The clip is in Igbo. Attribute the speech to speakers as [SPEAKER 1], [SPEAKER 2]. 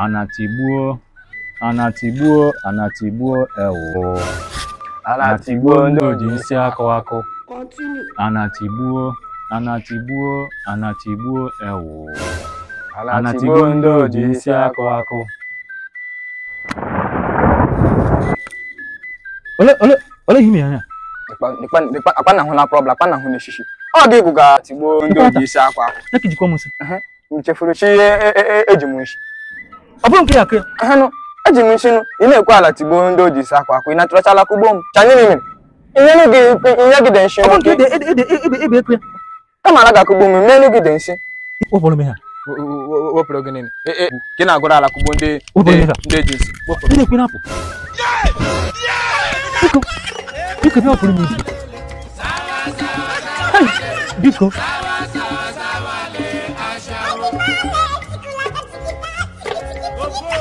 [SPEAKER 1] Anatigbuo, anatigbuo, anatigbuo ewo. Anatigbuo ndị oji nsị akụ akụ. Anatigbuo, anatigbuo, anatigbuo ewo. Anatigbuo ndị oji nsị akụ akụ.
[SPEAKER 2] Ole ole ole himi anya.
[SPEAKER 3] Akwana hụ na problem, akwana hụ na eshishi. Ọ dị ịgụ ga-atigbuo ndị oji isi akwa akụ. Nekijikwa musi. Nchefuru chi eji m nshi. ọ bụrụ nke ya akụ ya eji m nchinu ị na-ekwe ala tigbuo ndị o ji si akwa akwa ị natụrachala akwụgbo m chanye m inyegide nshi kama ala ga-akụgbo m menugide nshi wepụrụ
[SPEAKER 4] gị e, e, gị na-agụrụ ala kụgbo ndị eji nsi biko
[SPEAKER 5] Biko ọpụrụ m isi biko What the